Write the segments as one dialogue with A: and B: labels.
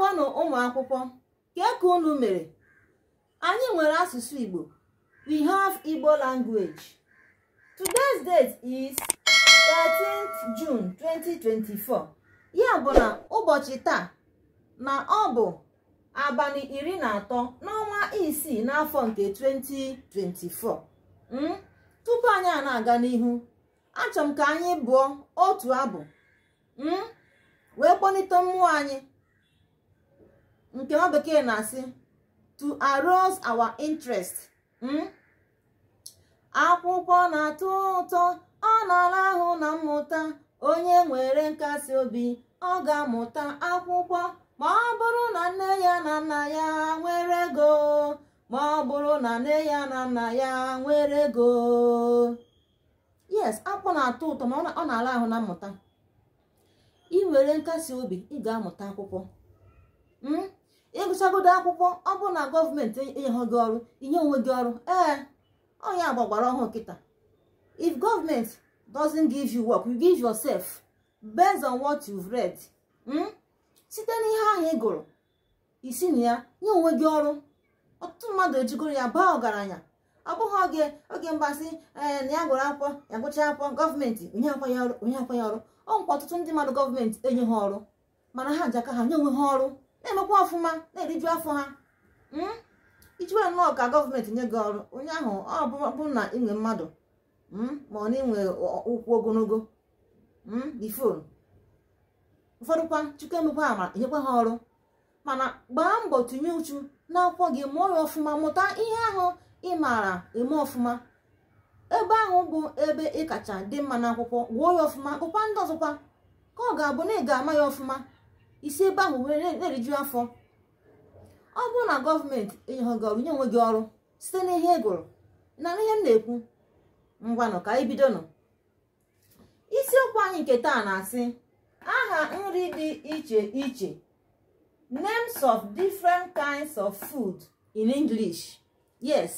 A: gwanụ ụmụ akwụkwọ ka ka unu mere anyị nwere asụsụ Igbo we have Igbo language today's date is 13th June 2024 ya bụ na ụbọchị taa na ọ bụ abalị iri na atọ n'ọnwa isii n'afọ nke 2024 hmm? tupu anyị a na-aga n'ihu achọrọ m ka anyị bụọ otu abụ hmm? wee kpọlite mmụọ anyị nke ọ bekee na-asị to arouse our interest hmm? akwụkwọ na-atọ ụtọ ọ na-ala ahụ na mmụta onye nwere nkasi obi ọ ga-amụta akwụkwọ ma ọ bụrụ na nne ya na nna ya nwere ego ma ọ bụrụ na nne ya na nna ya nwere ego yes akpụ na-atọ ụtọ ma ọ na-ala ahụ na mmụta ị nwere nkasi obi ị ga-amụta akwụkwọ hmm? ịgụchagodo akwụkwọ ọ bụrụ na gọọmenti enyeghị gị ọrụ inye onwe gị ọrụ ee agba gbara ọhụụ kịta if gọọmenti doesn't give you work you give yourself based on what you've read hmm? site n'ihe ahụ ị gụrụ isi na ya nye onwe gị ọrụ ọtụtụ mmadụ ejigoro ya baa ọgaranya ọ bụghị oge oge mgbasị ee na ya gụrụ akwụkwọ ya gụcha akwụkwọ gọọmenti onye akwanye ọrụ onye akwanye ọrụ ọ nkwa ọtụtụ ndị mmadụ gọọmenti enye ha ọrụ mana ha ji ha nye onwe ha ọrụ na-emekwa ọfụma na-eriju afọ ha hmm? ijiwe nnọọ ka gọọmenti nye gị ọrụ onye ahụ ọ bụrụ na inwe mmadụ hmm, ma ọ na inwe ụkwụ ogologo bifon hmm, ụfọdụkwa chukwu emekwa amara nyekwa ha ọrụ mana gbaa mbọ tinye uchu n'akwụkwọ gị mụọ ya ọfụma mụta ihe ahụ ị maara eme ọfụma ebe ahụ bụ ebe ị kacha dị mma n'akwụkwọ gụọ ya ọfụma gụkwa ndị ọzọkwa ka ọ ga-abụ na ị ga-ama ya ọfụma isi ebe ahụ na-eriju afọ ọ bụrụ na gọọmenti enyeghị ọrụ onwe gị ọrụ site n'ihe ihe gụrụ na n'ihe m na-ekwu ngwanụ ka anyị bido isiokwu anyị nke taa na-asị aha nri dị iche iche names of different kinds of food in English yes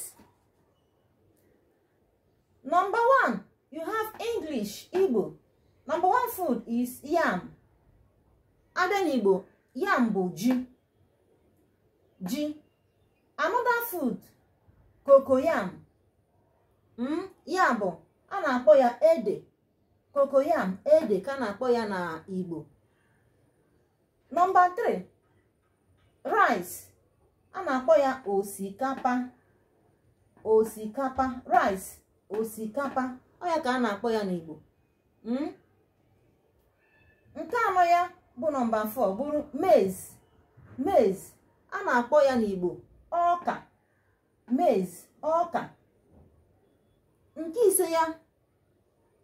A: number one you have English Igbo number one food is yam abịa n'igbo yam bụ ji ji anoda food kokoyam yam hmm, ya bụ a na-akpọ ya ede kokoyam ede ka na-akpọ ya na igbo nọmba 3 rice a na-akpọ ya osikapa osikapa rice osikapa ọ ya ka a na-akpọ ya n'igbo hmm? nke anọ ya bụ nọmba 4 bụrụ maize maize a na-akpọ ya n'igbo ọka maize ọka nke ise ya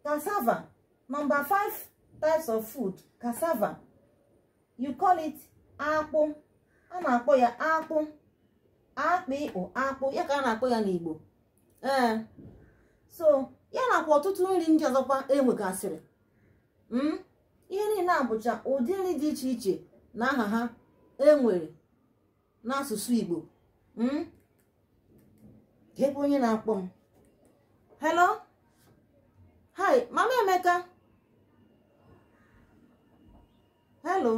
A: cassava nọmba 5 types of food cassava you call it akpụ a na-akpọ ya akpụ akpụ ịkpụ akpụ ya ka a na-akpọ ya n'igbo ee so ya nakwa ọtụtụ nri ndị ọzọkwa enwegasịrị gasịrị. Hmm? ihe niile abụcha bụcha ụdị nri dị iche iche na aha ha enwere n'asụsụ Igbo hmm? ebe onye na-akpọ m hello hi mama Emeka hello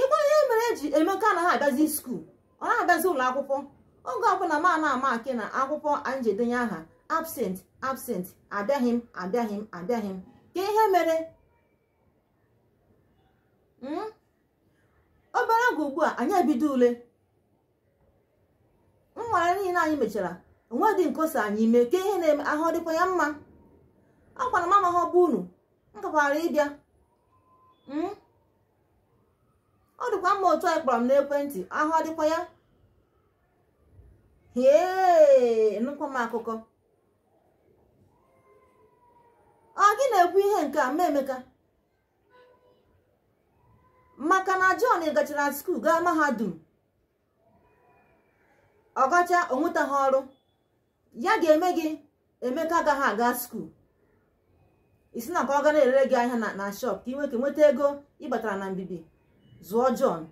A: igbe ihe mere eji Emeka anaghị abịazi skuul ọ na-abịazi ụlọ akwụkwọ oge ọbụla ma na-ama akị na akwụkwọ njedenye aha absent absent abịaghị m abịaghị m abịaghị m ka ihe mere obere hmm? oge ugbu a anyị ebido ule nwara niile anyị mechara onwe dị nkosa anyị ime ka ihe na-eme ahụ dịkwa ya mma a m mama ọbụ unu nkakwara ịbịa hmm? ọ dịkwa mma otu anyị kpọrọ m n'ekwentị ahụ dịkwa ya hee nụkwa akụkọ ọ gị na-ekwu ihe nke a mmemme emeka maka na John gachara skuul gaa mahadum ọ gacha onwetaghị ọrụ ya ga-eme gị emeka agaghị aga skuul isi na ka ọ gara elere erere gị ahịa na shop ka ị nwee nweta ego ịbatara na mbibi zụọ John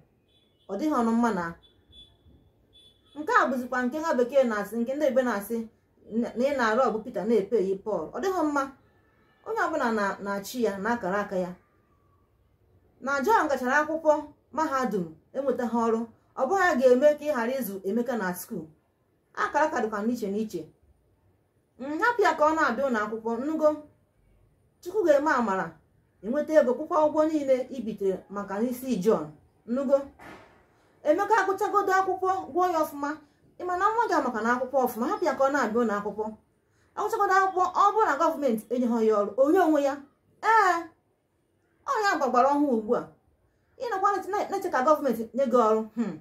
A: ọ dịghị ọnụ mma na nke a bụzikwa nke ha bekee na-asị nke ndị ebe na-asị na ị na-arụ ọgụ Pita na-epe Pọl ọ dịghị mma onye ọbụla na-achị ya na akara aka ya na John gachara akwụkwọ mahadum enweta ha ọrụ ọ bụghị ya ga-eme ka ị ghara ịzụ Emeka na skuul akara kadụkwa n'iche n'iche nhapụ mm, ya ka ọ na-abịa ụlọ akwụkwọ nnugo chukwu ga-eme amara enweta ego kwụkwa ụgwọ niile ibitere maka n'isi John nnugo Emeka agụchagodo akwụkwọ gwụọ ya ọfụma na nwa gị maka na akwụkwọ ọfụma hapụ ya ka ọ na-abịa ụlọ akwụkwọ agụchagodo akwụkwọ ọ bụrụ na gọọmenti enyeghị ya ọrụ onye onwe ya ee ọ ya gbagbara ọhụụ ugbu a ka gọọmenti nye gị ọrụ hmm.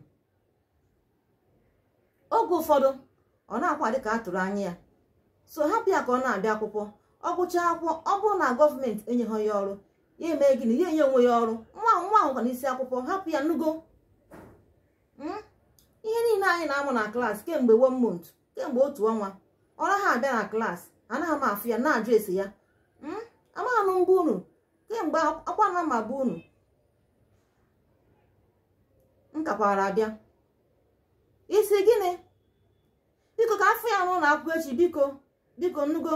A: oge ụfọdụ ọ na-akwa dị ka a tụrụ anya ya so hapụ ya ka ọ na-abịa akwụkwọ ọ gụchaa akwụkwọ ọ bụrụ na gọọmenti enyeghị ya ọrụ ya eme gịnị ya enye onwe ya ọrụ nwa nwa ahụ n'isi akwụkwọ hapụ ya nnugo hmm? ihe niile anyị na-amụ na klaasị kemgbe one kemgbe otu ọnwa ọ naghị abịa na klaasị anaghị m afụ ya na-ajụ ese ya hmm? amaghị m mgbe unu kemgbe akwa na ma bụ unu nkakwara abịa isi gịnị biko ka afọ ya nwụ na akwụkwọ echi biko biko nnugo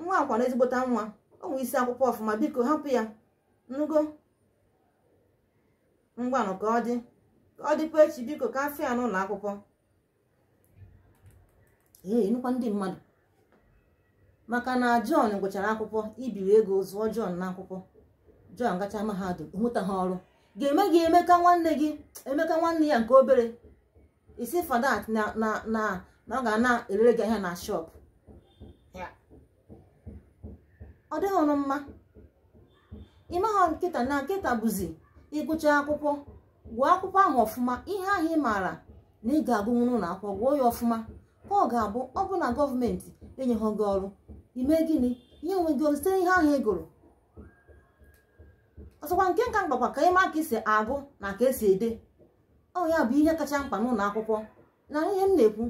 A: nwa akwa na ezigbota nwa onwe isi akwụkwọ ọfụma biko hapụ ya nnugo ngwanụ ka ọ dị ka ọ dịkwa echi biko ka afọ ya n'ụlọ akwụkwọ ee nụkwa ndị mmadụ maka na John gụchara akwụkwọ ibiri ego zụọ John n'akwụkwọ John gacha mahadum hụta ha ọrụ ga-eme gị emeka nwanne gị emeka nwanne ya nke obere isi fadat na na ọ ga na-erere gị ahịa na shop ọ dịghị ọnụ mma ịmaghọ nkịta na nkịta bụzi ịgụcha akwụkwọ gụọ akwụkwọ ahụ ọfụma ihe ahụ ị maara na ị ga-agụnwuru na akwụkwọ gụọ ya ọfụma ka ọ ga-abụ ọ bụ na gọọmenti enyeghị gị ọrụ ime gịnị ihe onwe gị site ihe ahụ ị e gụrụ ọsọkwa nke nka mkpakwa ka ịma ka esi agụ na ka esi ede ọ ya bụ ihe kacha mkpa n'ụlọ akwụkwọ na ihe m na-ekwu